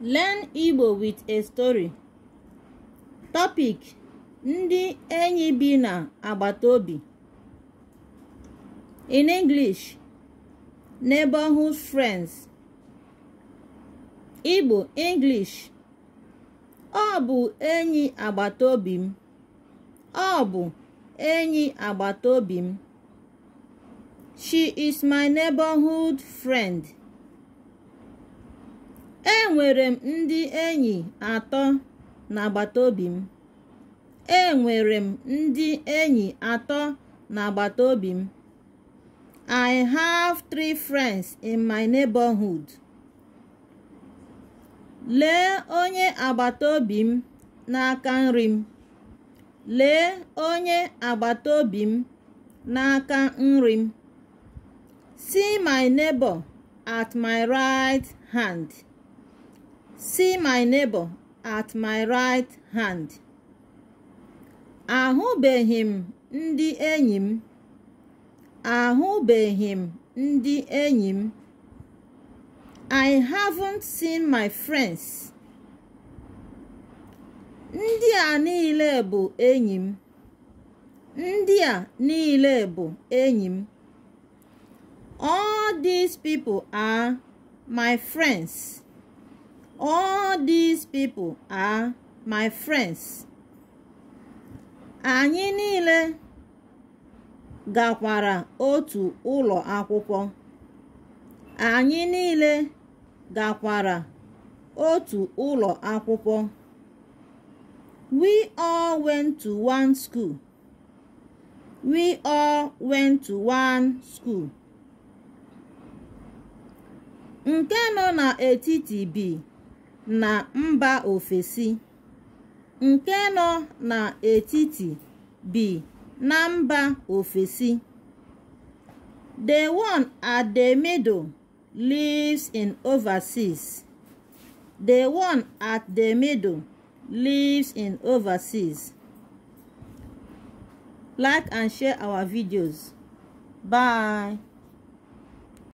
Learn Igbo with a story. Topic: Ndị enyi bi na agbata obi. In English, neighborhood friends. Igbo English. Ọ bụ enyi agbata obi m. Ọ bụ enyi agbata obi m. She is my neighborhood friend. enwere m ndị enyi atọ n'agbata obi m enwere m ndị enyi atọ n'agbata obi m I have three friends in my neighborhood. Lee onye agbata obi m n'aka nri m. Lee onye agbata obi m n'aka nri m. See my neighbor at my right hand. see my neighbor at my right hand ahụbeghị m ndị enyi m ahụbeghị m ndị enyi m I haven't seen my friends ndị a niile bụ enyi m ndị a niile bụ enyi m all these people are my friends all these people are my friends anyị niile gakwara otu ụlọ akwụkwọ anyị niile gakwara otu ụlọ akwụkwọ we all went to one school we all went to one school nke nọ n'etiti bi na mba ofesi nke nọ n'etiti b na mba ofesi the one at the middle lives in overseas the one at the middle lives in overseas like and share our videos bye